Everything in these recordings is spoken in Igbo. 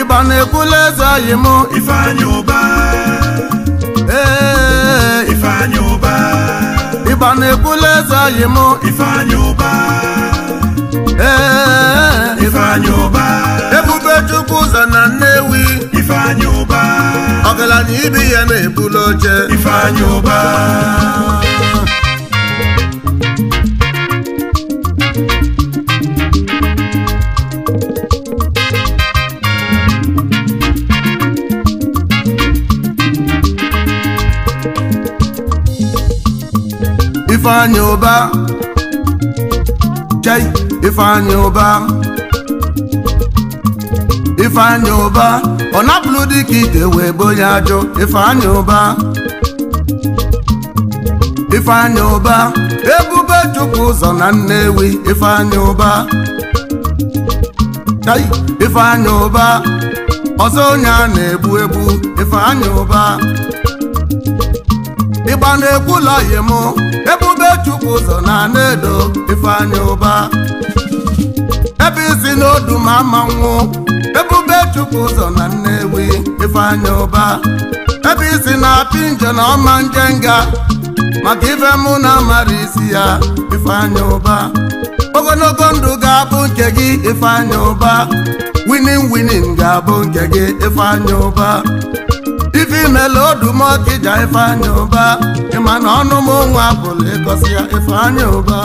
Ìbànúkulẹ̀sà yìí mú. Ifeanyi Uba. Eh. Ifeanyi Uba. Ìbànúkulẹ̀sà yìí mú. Ifeanyi Uba. Eh. Ifeanyi Uba. nnukwu ụzọ na Nnewi Ifeanyị ụba ọgaranya ibi ya na-ebulu oche Ifeanyị ụba Ifeanyị ụba chai Ifeanyị ụba ifeanyi ụba ọ napụlụ dịka ite wee bo ya ajọ ifeanyi ụba ifeanyi ụba ebube chukwu ụzọ na nnewi ifeanyi ụba ifeanyi ụba ọzọ onye a na ebu egbu ifeanyi ụba ịgba na-ekwu lọyị m ebube chụpụ ụzọ na na-edo ifeanyi ụba ebe isi n'odu ma ama nwụ ebube chụpụ ụzọ na Nnewi ifeanya ụba ebe isi na-apị nje na ọma nje nga maka ife mụ na amara isi ya ifeanya ụba ogologo ndụ ga-abụ nke gị ifeanya ụba winin winin ga-abụ nke gị ifeanya ụba ife imela odumọkija ifeanya ụba ịma na ọnụ m onwe ya ifeanya ụba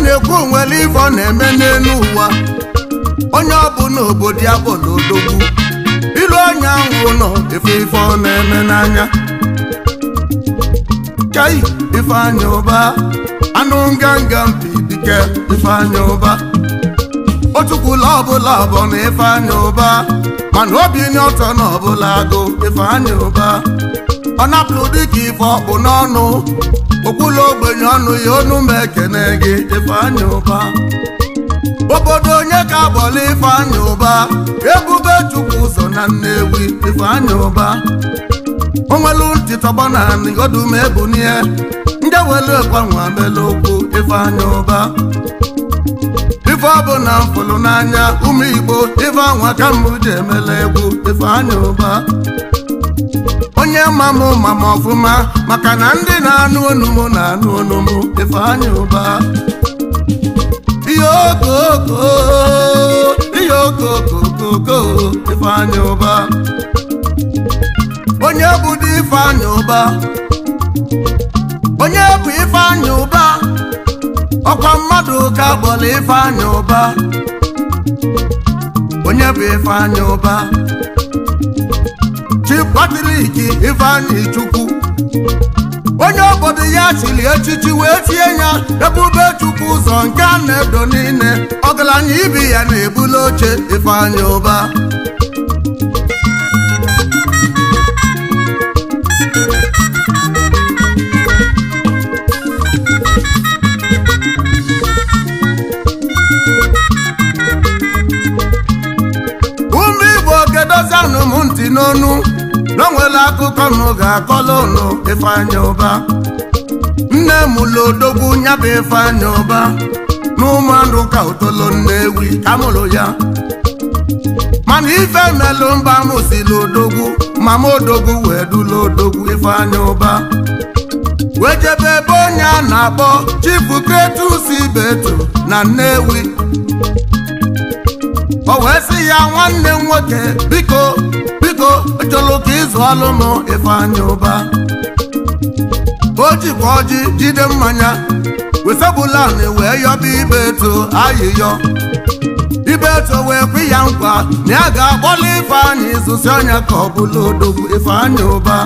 na-ekwu onwere ifo na-eme n'elu ụwa onye ọ bụ n'obodo ya n'odogwu na ilu onye ahụ nọ efe ife na-eme n'anya kai anya ụba anụ nganga mpi dike ifeanyị ụba otukwula ọbụla ọbọ na ifeanyị ụba mana obi nye ọtọ na ọbụla agụ ụba ọ napụrụ dịka ife ọkpụ n'ọnụ okwula ogbenye ọnụ ya ọnụ ma ekene gị Ifeanyi ụba. obodo onye ka agbọla Ifeanyi ụba, ebube chukwu ụzọ na Nnewi ụba. O onwelu ntị tọgbọ na nigodum ebunie ndị welu gbanwe mele okwu Ifeanyi ụba. ife ọ bụ na mfụlụ n'anya ụmụ Igbo ife anwa ka mbụ ji emela egwu Ifeanyi ụba. onye mam mam ọfụma maka na ndị na-anụ ọnụ m na-anụ ọnụ m Ifeanyi Uba ihe okokokokoko Ifeanyi Uba onye bụ di Ifeanyi Uba onye bụ Ifeanyi Uba ọkwa mmadụ ka gbọrọ Ifeanyi Uba onye bụ Ifeanyi Uba chi Patrik ifeanyi Chukwu onye obodo ya chiri echichi wee tie ya ebube chukwu ụzọ nke a na-edo niile ọgaranya ibi ya na-ebuli oche Ifeanyi Ụba akụkọ nụ ga-akọla ụlọ ifeanya ụba nne mụlụ odogwu nyabụ ifeanya ụba n'ụmụndụ ka otolo nnewi ka mụlụ ya mana ife melụ mba mụsili odogwu mama odogwu wee dula odogwu ifeanya ụba wee jebe ebe onye a na-akpọ chifu kretus ibetu na nnewi o wee si ya nwanne m nwoke biko ego chọlụ ka ịzụ alụmụ ifeanyị ụba o jikwa ọjị jide mmanya wesebụlanị wee yọba ibe eto ayịyọ ibe eto wee kwe ya nkwa na ya ga-akpọlụ e ifeanyị ịzụsi ọnya ka ọ bụla odogwu ifeanyị ụba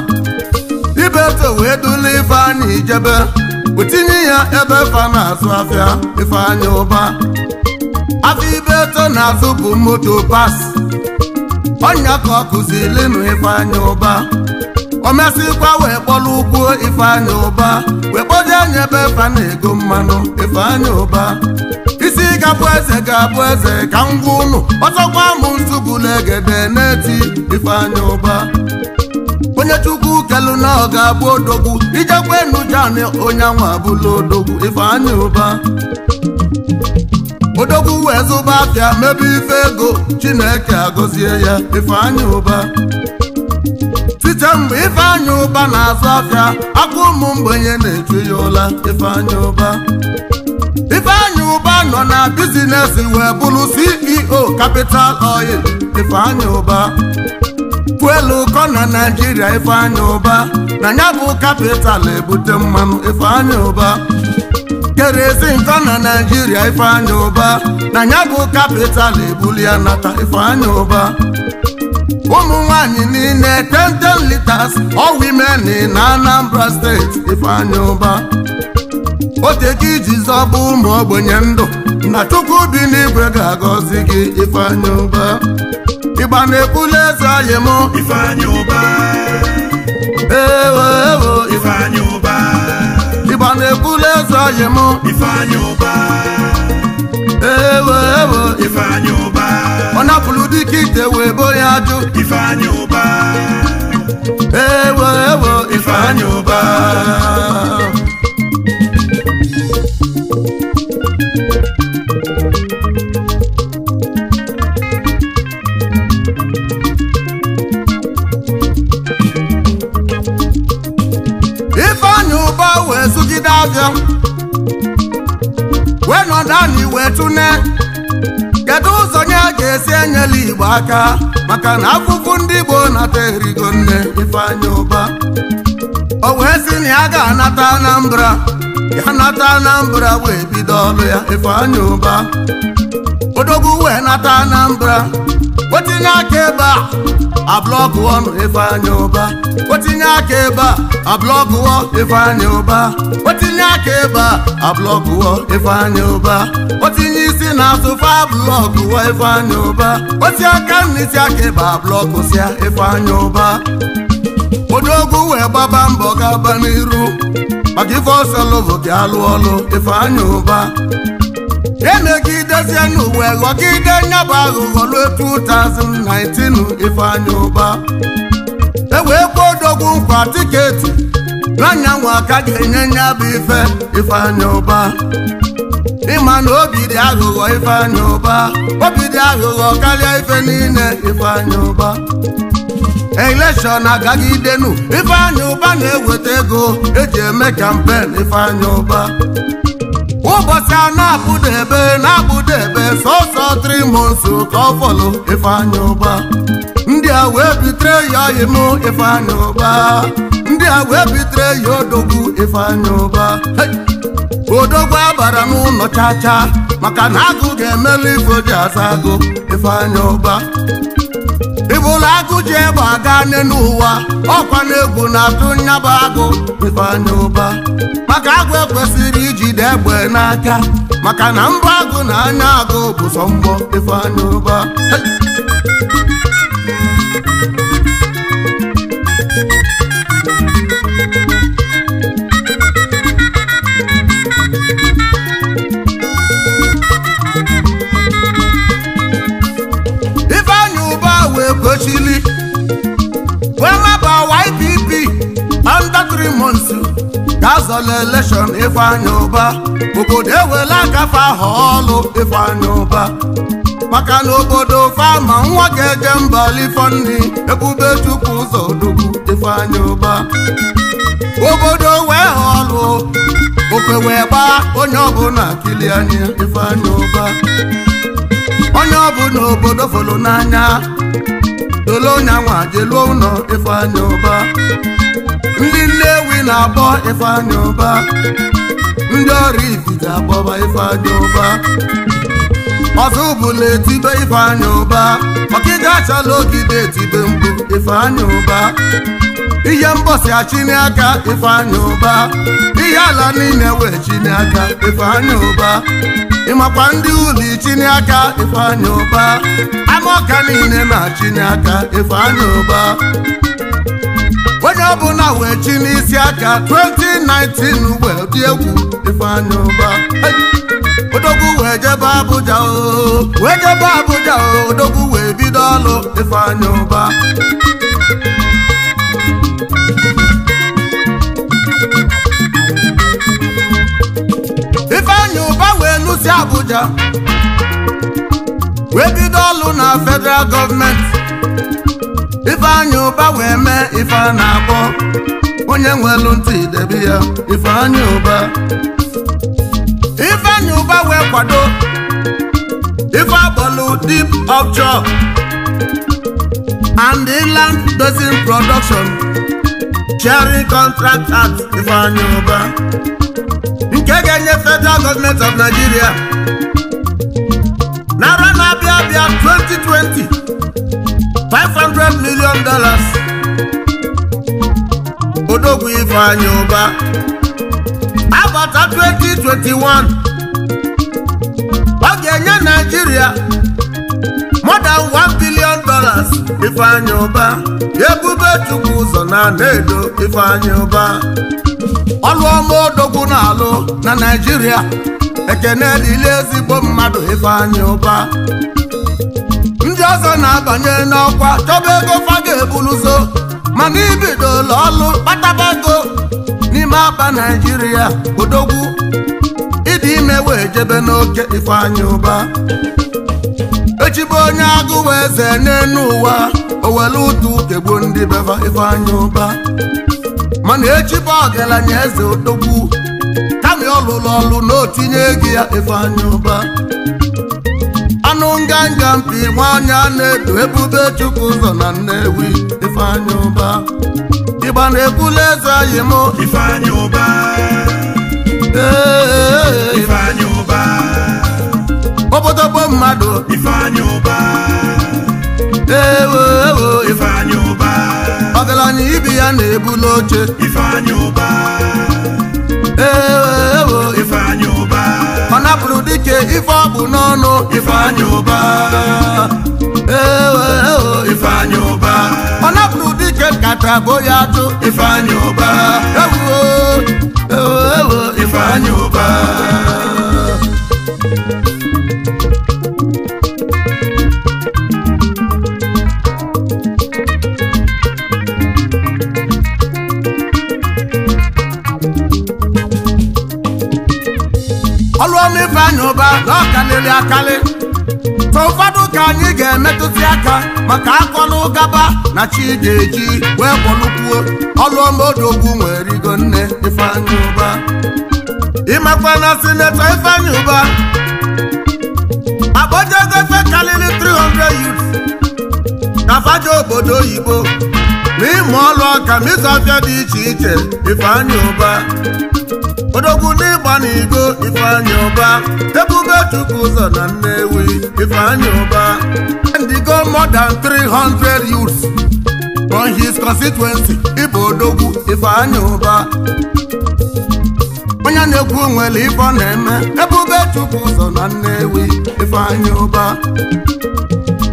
ibe eto wee dula ifeanyị ijebe wetinye ya ebe fa na-azụ afịa ifeanyị ụba afọ ibe eto na-azụ bụ moto pas ọnya ka ọ kụzili m ifeanya ụba o mesịkwa wee kpọrọ ụkwụ ifeanya ụba wee kpọje anya ebe fa na-ego mmanụ ifeanya ụba isi ga eze ga-abụ eze ka m gwa ụnụ ọzọkwa m nsugbulegede na-eti ifeanya ụba onye chukwu kelu na ọ ga-abụ odogwu ijekwa enu jani onye anwa abụla odogwu ifeanya ụba odogwu wee zụba afịa mebe ife ego chineke agọzie ya ifeanyị ụba site mgbe ifeanya ụba na-azụ afịa aka ụmụ mgbenye na-echu ya ụla ifeanyị ụba ụba nọ na bizinesi wee bụrụ ceo capital oil ifeanyị ụba fuelu ụkọ na naijiria ifeanya ụba na ya bụ kapital ebute mmanụ ifeanya ụba kere ezi na naijiria ifeanya ụba na ya bụ kapital ebuli ya nata ifeanya ụba ụmụ nwanyị niile 10 litas, ọ women na Anambra steeti ifeanya ụba oteke iji bụ ụmụ ogbenye ndụ na chukwu bi n'igwe ga-agọzi gị ifeanya ụba ịgba na-ebuli eze anyị mụ ụba ifeanya ụba ọ na-ebulu eze ọyị Ifeanyi Uba ewe ewe Ifeanyi ụba. ọ napụrụ dike ite wee bo ya ajụ Ifeanyi Uba ewe ewe Ifeanyi ụba. ọbịa wee nọdụ anyị wee tụne kedu ụzọ nye a ga-esi enyela igbo aka maka na afụfụ ndị Igbo nata erigo nne ifeanyị ụba o wee si na ya ga-anata Anambra ya nata Anambra wee bido ọlụ ya ifeanyị ụba odogwu wee nata Anambra otinye aka ebe a ablọkụ ọnụ Ifeanyi Ụba otinye aka ebe a ablọkụ ọ Ifeanyi Ụba otinye aka ebe a ablọkụ ọ Ifeanyi Ụba otinye isi na-asụ fa blọkụ ọ Ifeanyi Ụba oti aka n'isi aka ebe a blọkụ sịa Ifeanyi Ụba odogwu wee gbaba mbọ gaba n'iru maka ife ọsọ lụbụ gị alụ ọlụ Ifeanyi Ụba emegidezie n'ụwa ghọgide nyabụ aghụghọ ruo 2019 ifeanya ụba ewee kwuo odogwu nkwa tiketi n'anyanwụ aka ga-enye nyabụ ife ifeanya ụba ịma na obi dị aghụghọ ifeanya ụba obi dị aghụghọ karịa ife niile ifeanya ụba elekshọn agagidenu ifeanya ụba na-eweta ego eji eme kampen ifeanya ụba ụbọchị a na ebe na ebe sọsọ trimons ka ọ fọlụ ifeanya ụba ndị a wee bitere ya ọyịm ifeanya ụba ndị a wee bitere ya odogwu ifeanya ụba odogwu abara n'ụlọ chacha maka na agụ ga-emelu ifo ji asa agụ ifeanya ụba ụlọ agụ ji egbe aga n'elu n'ụwa ọkwa na egwu na-atụ nyaba agụ ifeanya ụba maka agụ ekwesịrị ijide egbe n'aka maka na mbọ agụ na anya agụ bụ sọ mbọ ụba azọla elekshọn Ifeanyi Uba obodo ewela akafe aha ọlụ Ifeanyi Uba maka na obodo fama nwa ga-eje mba lifoni ebube chukwu ụzọ dugwu Ifeanyi Uba obodo wee họlụ okwe wee gbaa onye ọbụla kili anya Ifeanyi Uba onye ọbụla obodo folo n'anya dole onye anwa jeluo ụlọ Ifeanyi Uba ndị nne na-abọ Ifeanyi Uba ndị ọrụ ifite agbọba Ifeanyi Uba ọzọ bụla etibe Ifeanyi Uba achọla achala ogide etibe mgbu Ifeanyi Uba ihe mbọsi achiniaka Ifeanyi Uba ihe ala niile e wee chiniaka Ifeanyi Uba ịmakwa ndị ụlọ ichiniaka Ifeanyi Uba ama ọka niile na-achiniaka Ifeanyi Uba onye na wee chi n'isi aka 2019 uwe dị egwu Ifeanyi Uba odogwu wee jebe Abuja oo oh. wee jebe Abuja oh. odogwu wee bido ọlụ Ifeanyi Uba Ifeanyi wee lụsi Abuja wee bido ọlụ na federal gọọmenti ife anya ụba wee mee ife a na-akpọ onye nwelu ntị debe ya ife anya ụba ife anya ụba wee kwado ife akpọlụ deep offshore and inland basin production sharing contract at ife anya ụba nke ga-enye federal government of Nigeria narị na-abịa abịa 2020 500 million dollars odogwu ifeanyi ụba abata 2021 ọ ga-enye naijiria more than 1 billion dollars ifeanyi ụba ebube chukwu ụzọ na na-edo ifeanyi ụba ọlụ ọma odogwu na-alụ na naijiria ekene dịla ezigbo mmadụ ifeanyi ụba ọzọ na-abanye n'ọkwa chọba ego fa ga mana mana ụlọ ọlụ kpataba ego n'ime aba naijiria odogwu ịdị ime wee jebe n'oke ifeanya ụba echibe onye agụ wee zee n'enu ụwa owelu ụtụ kegbu ndị beva ifeanya ụba mana echibe ọgaranya eze odogwu kami ọlụlụ ọlụ na otinye gị ya ifeanya ụba ọnụ nganga mpi nwanyị na-edu ebube chukwu ụzọ na Nnewi ifeanyị ụba ịgba na-ebula eze anyị m ifeanyị ụba ifeanyị ụba obodo mmadụ ifeanyị ụba ewo ewo ifeanyị ụba anyị ibi ya na ebule oche ifeanyị ụba ewo ewo ifeanyị ụba ọna pụrụ dike ife ọ bụ n'ọnụ ifeanyị ụba ifeanyị ụba ọna pụrụ dike kata bụ ya atụ ifeanyị ụba ewo ewo ifeanyị aka maka akọnụ gaba na chi ga-eji wee kpọnukwuo ọlụọmodogwu nwere rigo nne ifeanyi ụba ịmakwa na sinetọ ifeanyi ụba akpọjago efe kalili 300 youth na faja obodo oyibo na ịmụ ọlụ ọka ma dị iche iche ifeanyị ụba odogwu n'ịgba n'igo ifeanyị ụba ebube chukwu ụzọ na nnewi ifeanyị ụba ndigo more than 300 youths from his constituency ịbụ odogwu ifeanyị ụba onye na-ekwu nwere ife ọ na-eme ebube chukwu ụzọ na nnewi ifeanyị ụba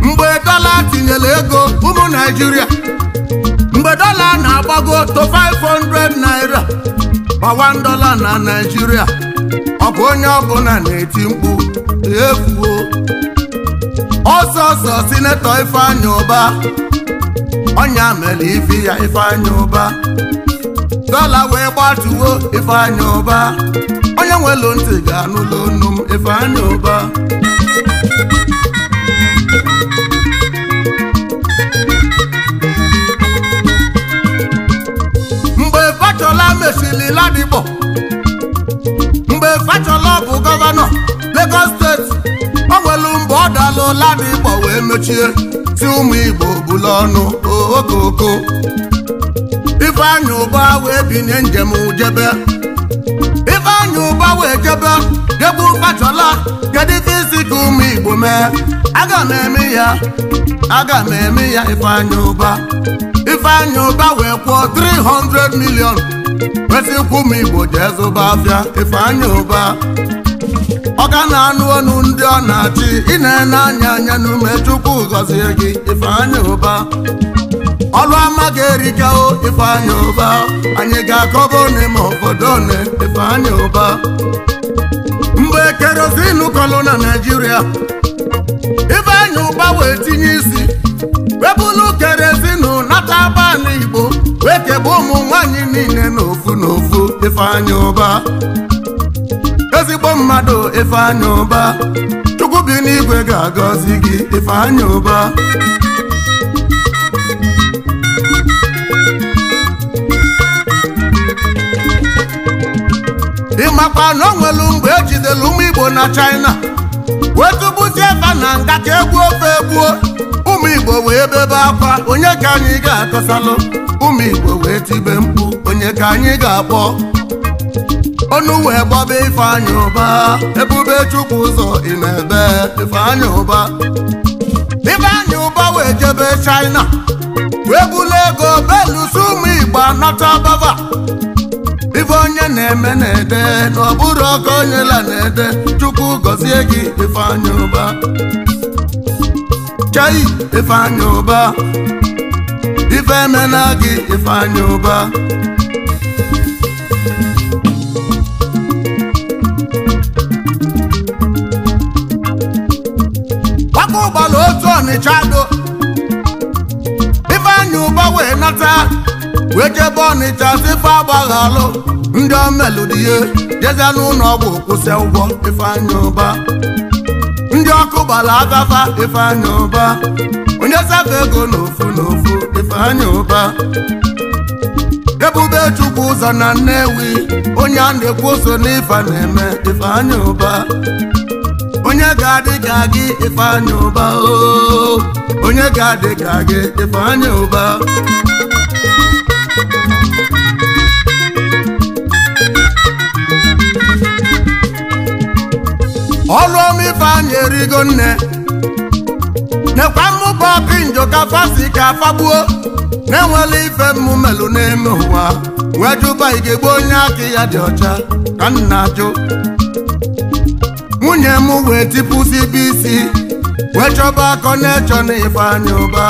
mgbe dọla tinyere ego ụmụ naijiria mgbe dọla na-agbago to 500 naira ma dola na naijiria ọ bụ onye ọbụla na-eti mkpu efuo ọsọsọ sinetọ Ifeanyi ụba ọnya mere ife ya Ifeanyi ụba dola wee gbatuwo Ifeanyi ụba onye nwelu ntị ga-anụla onu m Ifeanyi ụba. mesili ladipo mgbe fachola bụ gọvanọ Lagos steeti o nwelu mgbe ọ dalụ ladipo wee mechie si ụmụ Igbo bụla ọnụ okoko Ifeanyị ụba wee binye njem jebe Ifeanyị ụba wee jebe jegbu fachola kedu isi ka ụmụ Igbo mee aga m eme ya aga m eme ya Ifeanyị ụba Ifeanyị ụba wee kwuo 300 million kwesikwu ma igbo jee zụba afịa ifeanya ụba ọ na-anụ ọnụ ndị ọ na-achị ị na anya anya n'ume chukwu gọzie gị ifeanya ụba ọlụ ama ga-erikao ifeanya ụba anyị ga-akọba one ma obodo one ifeanya ụba mgbe kerozin kọlụ na naijiria ifeanya ụba wee tinye isi webụlụ kerozin nata banị ekegbe ụmụ nwanyị niile n'ofu n'ofu ifeanyị ụba ezigbo mmadụ ifeanyị ụba chukwu bi n'igwe ga-agọzi gị ifeanya ụba ịmakwa na o nwelu mgbe ejidelu ụmụ igbo na china wee tụbuzie ebe na nga ka egwu ofe egbuo ụmụ igbo wee bebe akwa onye ka anyị ga-akọsalụ ụmụ igbo wee tibe mkpu onye ka anyị ga-akpọ ọnụ wee gbaba ifeanyị ụba ebube chukwu ụzọ ị na-ebe ifeanyị ụba anyị ụba wee jebe china wee bulu ego beluso ụmụ igbo anata bava ife onye na-eme na-ede na ọ bụrụ ọka onye la na-ede chukwu gọzie gị ifeanyị ụba chai ifeanyị ụba ife emena gị ifeanyi ụba gbaka ụgbala otu ọnịcha do ifeanyi ụba wee nata wee jebe ọnịcha si ife agbaghalụ ndị omeludie jeze n'ụlọ ọgwụ kwụsị ụgwọ ifeanyi ụba ndị ọkụ gbara agafa ifeanyi ụba onye saka ego n'ofu n'ofu Ifeanyi Ubah ebube chukwu ụzọ na Nnewi onye a na-ekwu oso n'ife na-eme Ifeanyi ụba. onye ga-adị ka gị Ifeanyi ụba ooo. Oh. onye ga-adị ka gị Ifeanyi Ubah ọlụ ọma Ifeanyi erigo nne nekwa mmụba pinjo ka si ka fagbuo na-enwela ife mmụ melụ n'ime ụwa wee jụba igegbe onye aka ya dị ọcha ka nna nwunye m wee tipụzi bụ isi wee chọba akọ na-echọ na ụba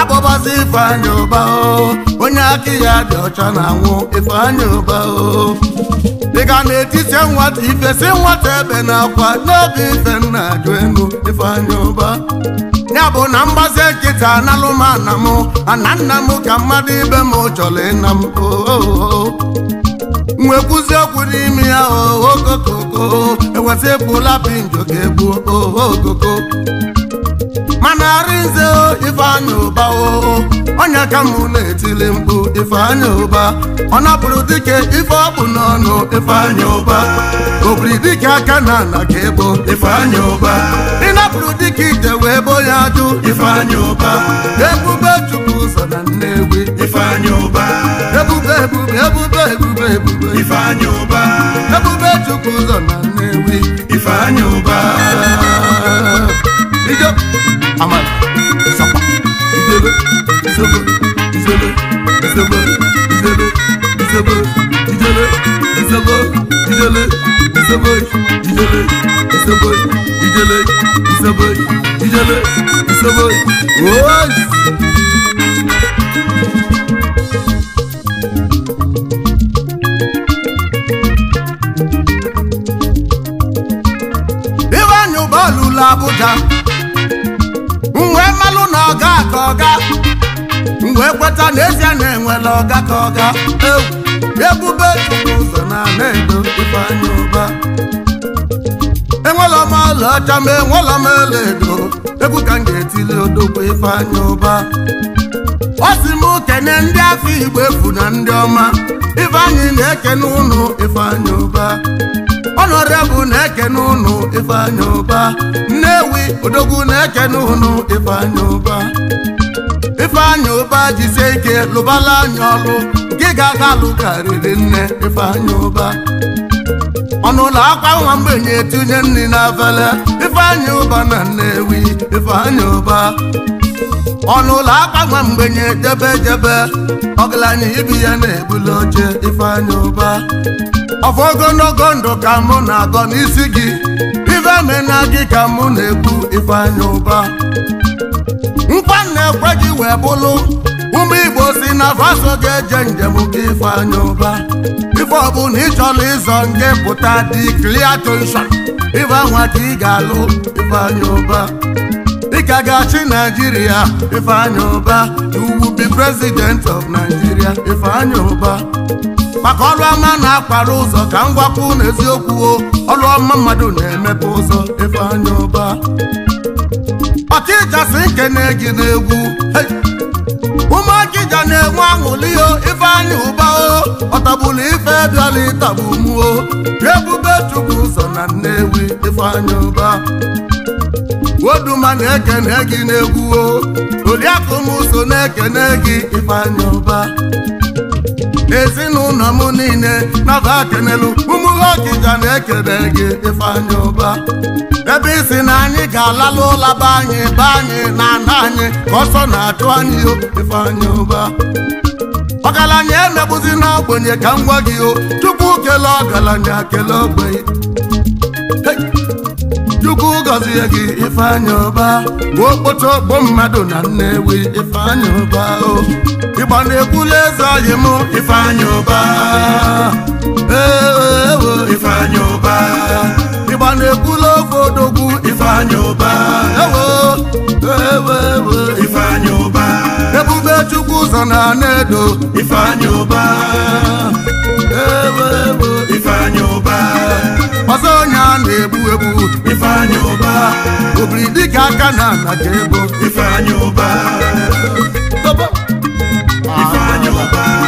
akpọbazi ifeanyị ụba onye aka ya dị ọcha na-anwụ ifeanyị ụba o dịka na-etiti nwata ifesi nwata ebe na akwa n'oge ife nna ajụ enu ifeanyị ụba ya bụ na mgbazi nkịta analụ m ana m ana nna m ka mmadụ ibe m chọrọ ịna m nwekwuzi okwu n'ime ya okokoko eweta pụla pinjo ga egbuo okoko mana arịnze ifeanyị ụba oo onye ka mụ na-etili mkpu ifeanyị ụba ọ napụrụ dike ife ọ bụ n'ọnụ ifeanyị ụba obiri dike aka na ana ka ebo ifeanyị ụba ịnapụrụ dike ije wee bo ya ajụ ifeanyị ụba ebube chukwu ụzọ na nne ifeanyị ụba ebube ebube ebube ebube ebube ifeanyị ụba ebube chukwu ụzọ na Nnewi ifeanyị ụba bido amala sapa izebe izebe izebe izebe izebe izebe izebe izebe izebe izebe izebe izebe izebe izebe izebe izebe izebe Abuja ka ọga wee kweta n'ezie na enwela ọga ka ọga ebube ụzọ na na edo ifeanya ụba enwela m ọcha ma enwela m edo egwu ka m ga-etili odogwu ifeanya ụba ọ sị m kene ndị afọ igbo efu na ndị ọma ifeanyị na-ekene ụnụ ifeanya ụba ọnọdụ na-ekene ụnụ ifeanya ụba nnewi odogwu na-ekene ụnụ ifeanya ụba ifeanya ụba jisie ike lụbala anya ọlụ gị ga-aga lụkarịrị nne ifeanya ụba ọnụụlọ akwa nwa mgbenye tinye nri n'afele ifeanya ụba na nnewi ifeanya ụba ọnụụlọ akwa nwa mgbenye jebe jebe ọgaranya ibi ya na-ebuli oche ifeanya ụba ọfọ ogologo ndụ ka mụ na-agọ n'isi gị ife mena gị ka mụ na-ekwu ifeanya ụba nkwa na-ekwe gị wee bụlụ ụmụ igbo si na faso ga-eje njem gị ifeanya ụba ife ọbụla ị chọrọ ịzọ nke pụta dị kliatonsa ife nwa ka ị ga-alụ ifeanya ụba dịka ga-achị naijiria ifeanya ụba you will be president of nigeria ifeanya ụba maka ọrụ ọma na-akpara ụzọ ka m gwakwu n'eziokwu ọrụ ọma mmadụ na-emepe ụzọ ife anya ụba ọchịchasị nkene na-egwu ụmụ ọchịcha na-enwe aṅụli o ife anya ụba o ọtagbulu ife bịara ịtagbu mụ ebube chukwu ụzọ na nnewi ife anya ụba oduma na-ekene gị na-egwu o oriakụ m so na-ekene gị ife anya ụba ezinụlọ m niile naba kenelu ụmụ ọkija na-ekele gị ifeanyị ụba ebe isi na anyị ga-alalụ ụla be anyị be anyị na ana anyị ọsọ na-achụ anyị ifeanyị ụba ọgaranya emegbuzi n'ogbenye ka m gwa gị o tupu kele ọgaranya kele ogbenye chukwu gọzie gị ifeanya ọba gbuo okpoto ogbo mmadụ na nnewi ifeanya ọba ịgba na-ekwula eze anyị m ifeanya ọba eewo ifeanya ọba ịgba na-ekwula ofe odogwu ifeanya ọba ewo ewo e, ifeanya ọba ebube chukwu ụzọ na na ifeanya ọba ewo ifeanya ọba ga-egbu egbu ifeanyị ụba obiri dịka aka na ala ga-ebo ifeanyị ụba ifeanyị ụba